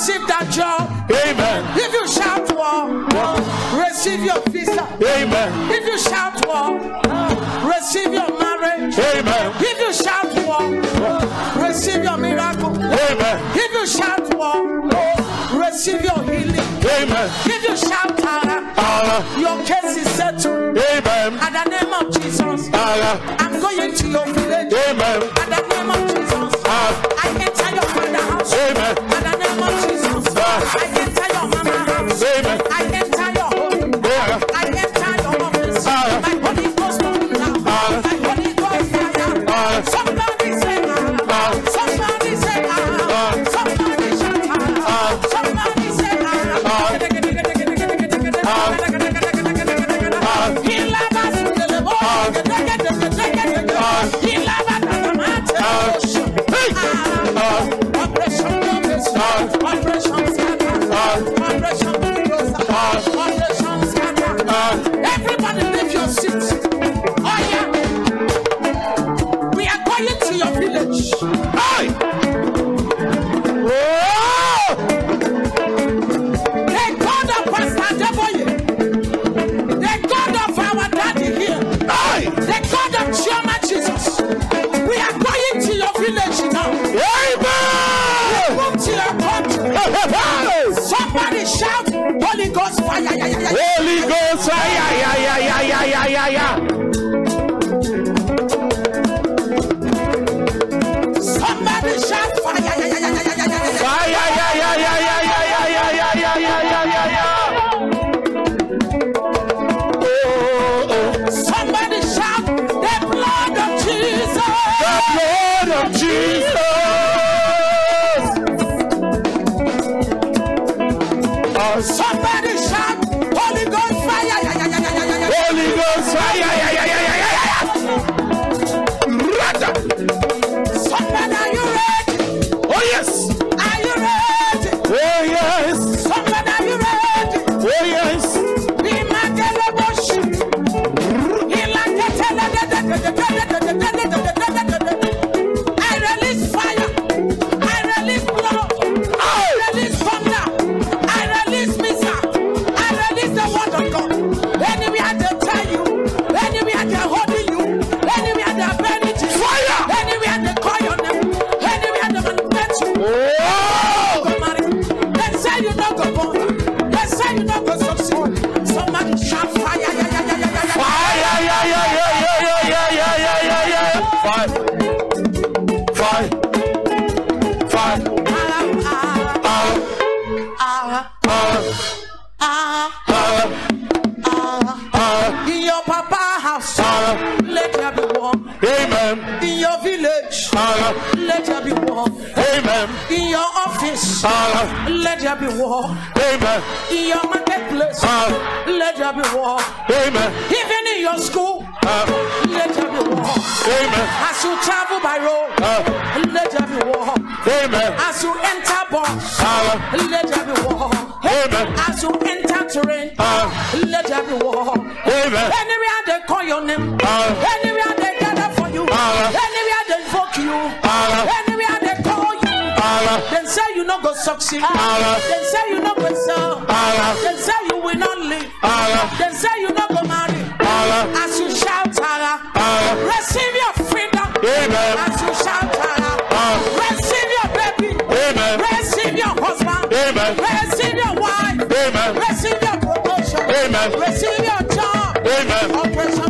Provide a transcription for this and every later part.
receive that job. Amen. If you shout war, receive your visa. Amen. If you shout war, receive your marriage. Amen. If you shout war, receive your miracle. Amen. If you shout war, receive your healing. Amen. If you shout Tara, Allah. your case is settled. Amen. At the name of Jesus, Allah. I'm going to your village. Amen. At the name of Jesus, Allah. I enter your father's house. Amen. Tchau. Let there be war. Amen. In your marketplace. Uh, let there be war. Amen. Even in your school. Uh, let there be war. Amen. As you travel by road. Uh, let there be war. Amen. As you enter bus. Uh, let there be war. Amen. As you enter terrain. Uh, let there be war. Amen. Anywhere they call your name. Uh, anywhere they gather for you. Uh, anywhere they invoke you. Uh, no go succeed. Ara. Dem say you no go sell. Ara. Dem say you will not live. Ara. Dem say you no go marry. Ara. As you shout ara. Ara. Receive your freedom. Amen. As you shout ara. Ara. Receive your baby. Amen. Receive your husband. Amen. Receive your wife. Amen. Receive your promotion. Amen. Receive your job. Amen. Operation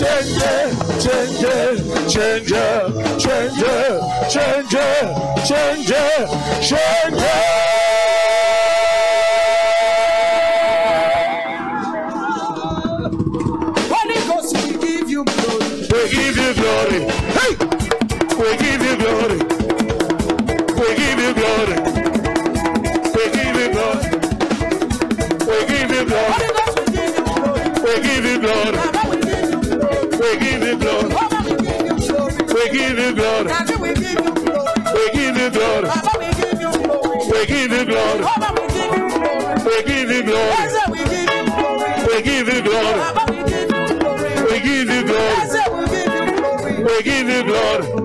changer, changer, changer, changer, changer, changer, changer. glory. We give you glory. We give you glory. We give you glory. We give you glory. We give you glory. We give you glory. We give you glory.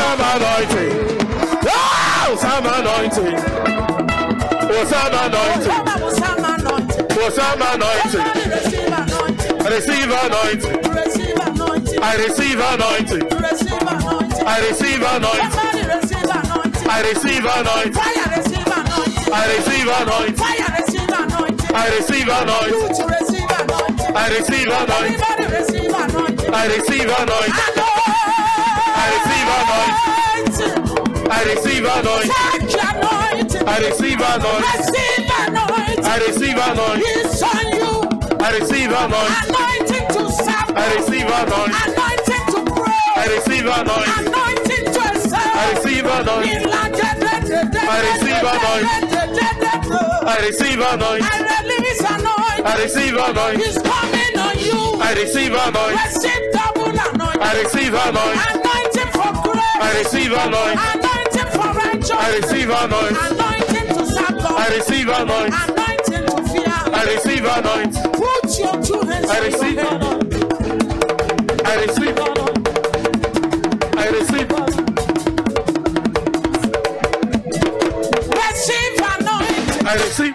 some anointing. Oh, some anointing. Oh, some anointing. Oh, some anointing. Receive anointing. I receive anointing. I receive anointing. I receive anointing. I receive anointing. I receive anointing. I receive anointing. I receive anointing. I receive anointing. I receive I receive anointing. I receive anointing. I receive anointing. It's on you. I receive anointing. Anointing to serve. I receive anointing. Anointing to pray. I receive anointing. Anointing to serve. I receive anointing. I receive anointing. I receive anointing. I release anointing. I receive anointing. It's coming on you. I receive anointing. Receive double anointing. I receive anointing. I receive anointing. Anointing for righteousness. I receive anointing. Anointing to serve I receive anointing. Anointing to fear. I receive anointing. Put your two hands I receive anointing. I receive anointing. I receive Receive anointing. I receive.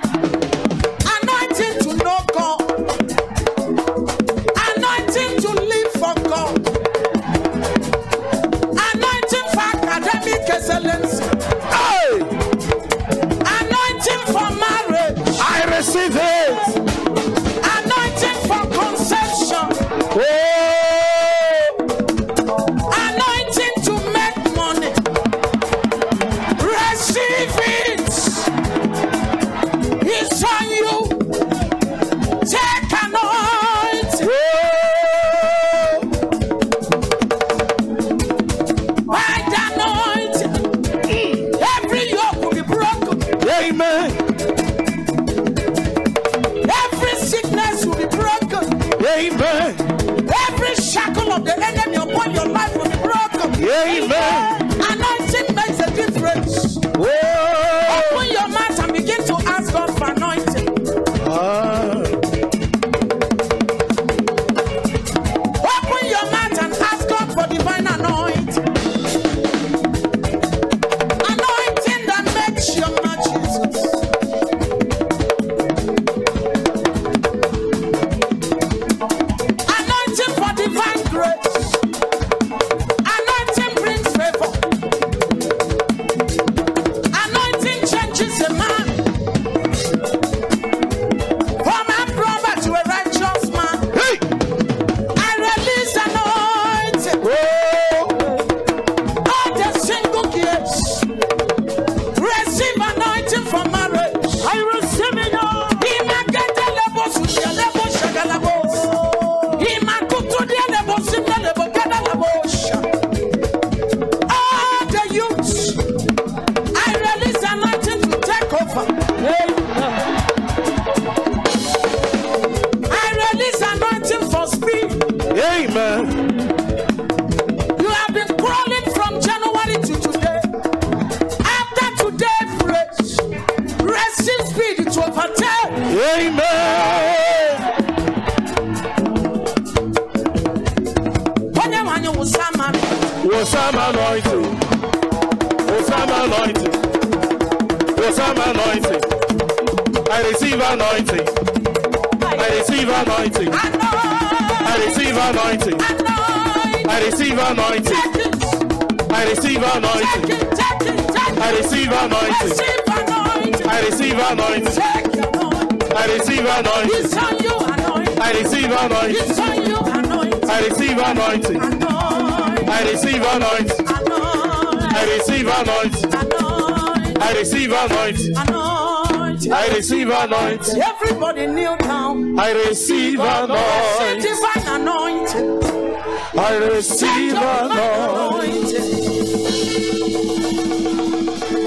I release anointing for speed. Amen. You have been crawling from January to today. After today, Rest in speed to overtake. Amen. When anointing. Osama anointing. Osama anointing receive anointing. I receive anointing. I receive anointing. I receive anointing. I receive anointing. I receive anointing. I receive anointing. I receive anointing. I receive anointing. I receive anointing. I receive anointing. I receive anointing. I receive anointing. anointing. I receive anointing. Everybody kneel down. I receive anointing. Receive anointing. I receive anointing.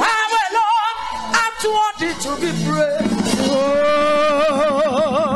I'm Lord, I'm too to be praised. Oh.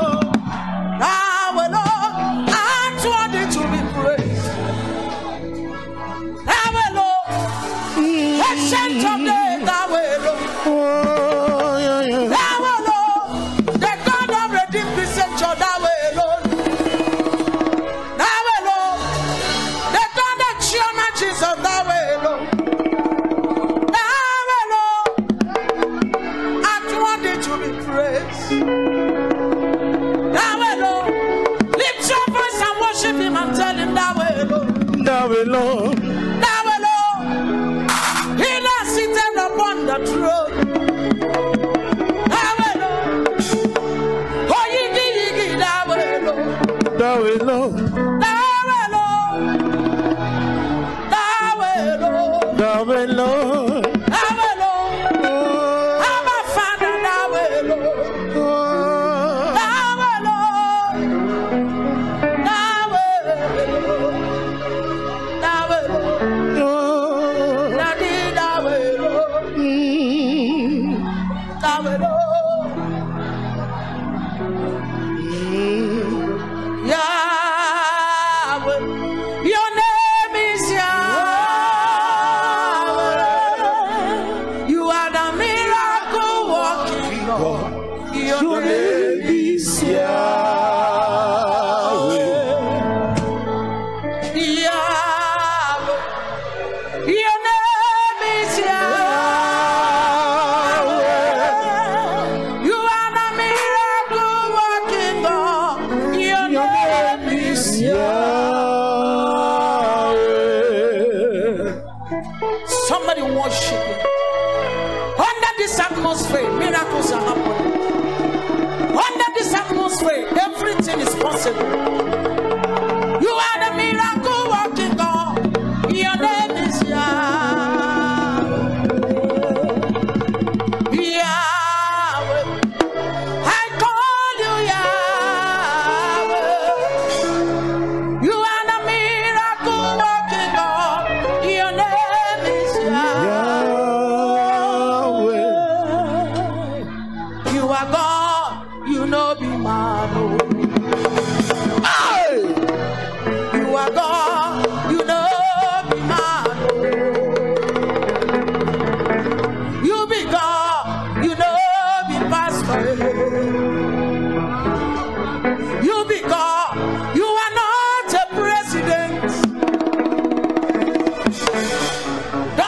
Nelson.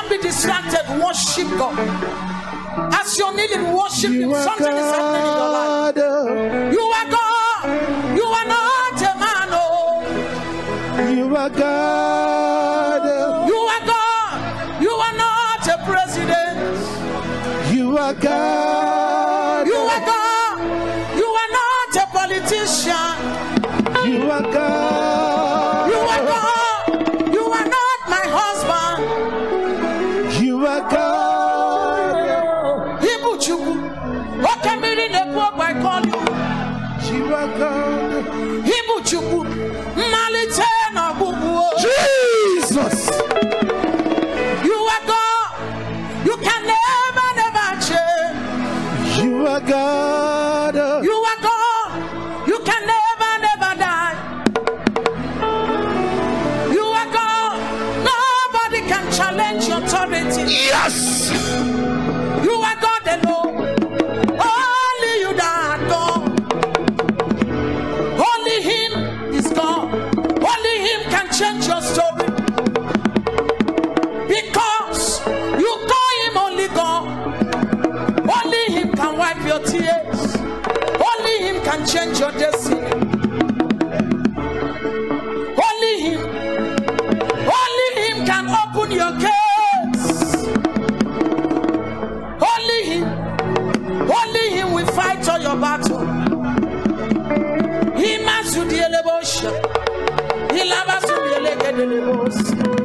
not be distracted. Worship God. As you're kneeling, worship you Him. Something God. is happening in your life. Oh. You are God. You are not a man. Oh. You are God. Oh. You are God. You are not a president. You are God. You are God. You are God. You can never, never die. You are God. Nobody can challenge your authority. Yes. delebosha. Ilaba sumi eleke delebos.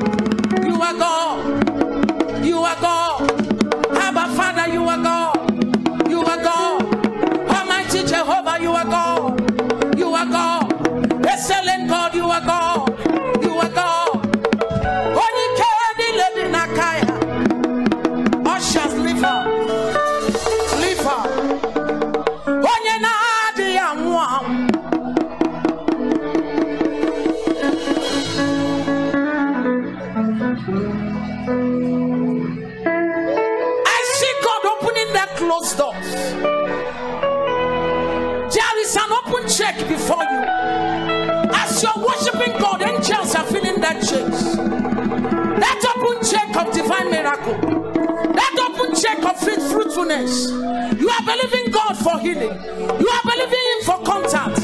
You are believing God for healing. You are believing Him for contact.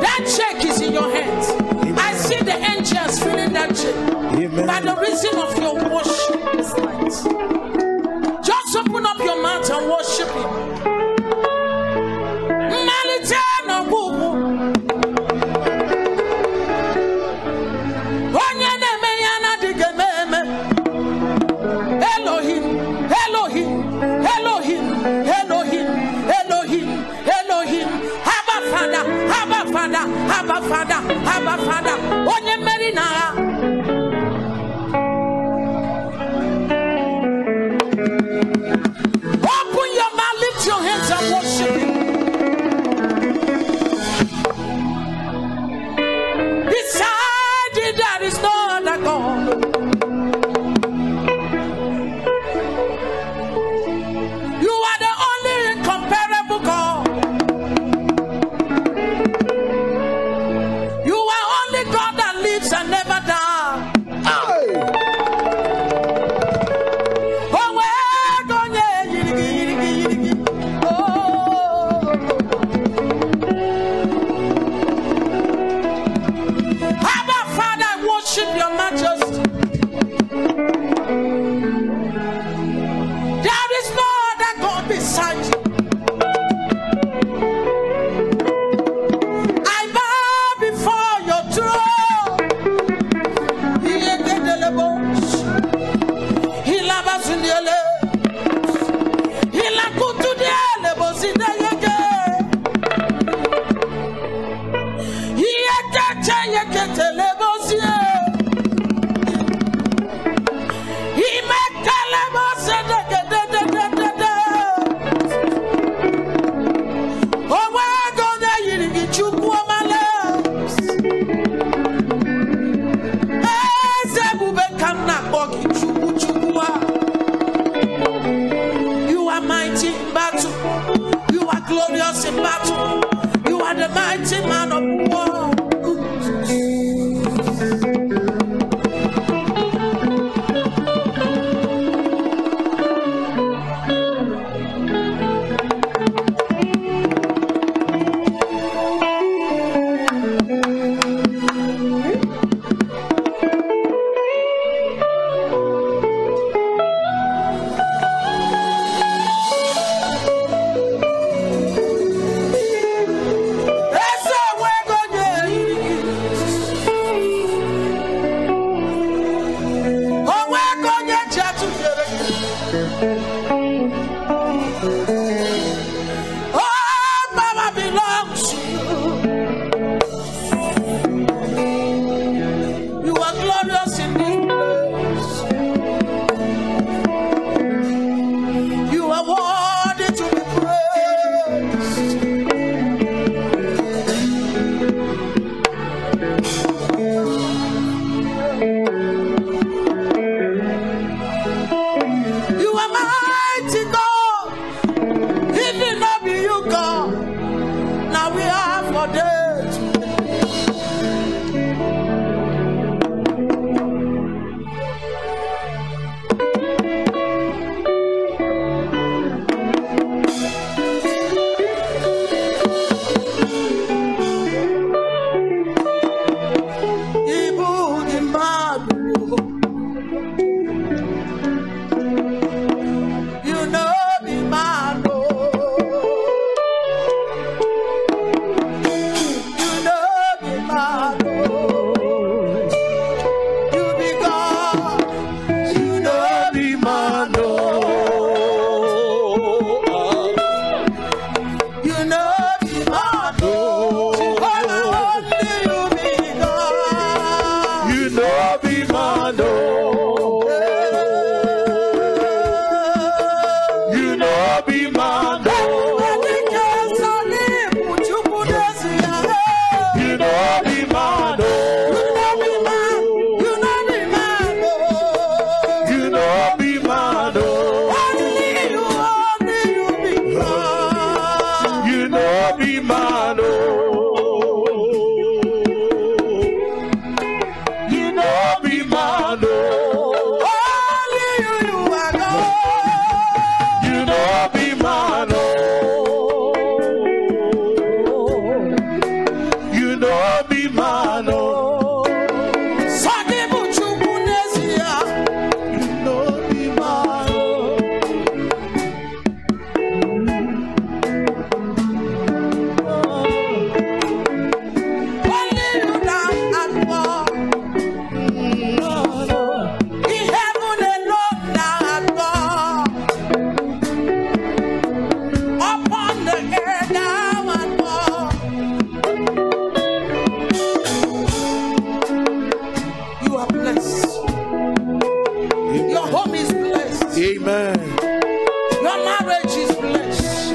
That check is in your hands. Amen. I see the angels filling that check. By the reason of your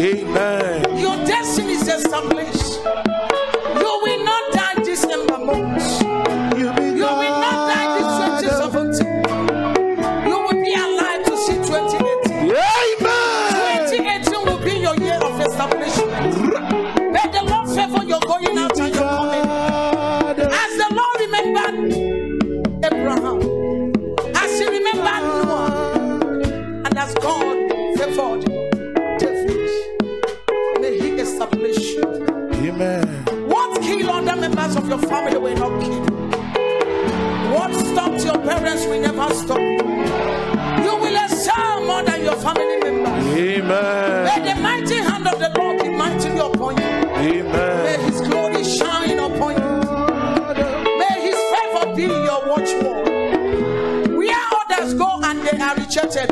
Amen. Your destiny is established.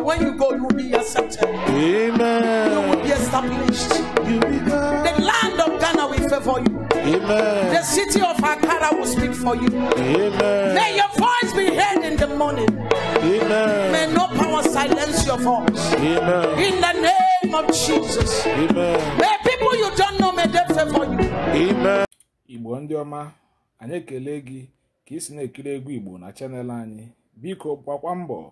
when you go, you will be accepted. Amen. You will be established. You be the land of Ghana will favor you. Amen. The city of Akara will speak for you. Amen. May your voice be heard in the morning. Amen. May no power silence your voice. Amen. In the name of Jesus. Amen. May people you don't know may they favor you. Amen. Igbo ndị ọma, anyị ekele gị ka ị si na-ekiri egwu Igbo na chanel anyị. Biko gbakwa mbọ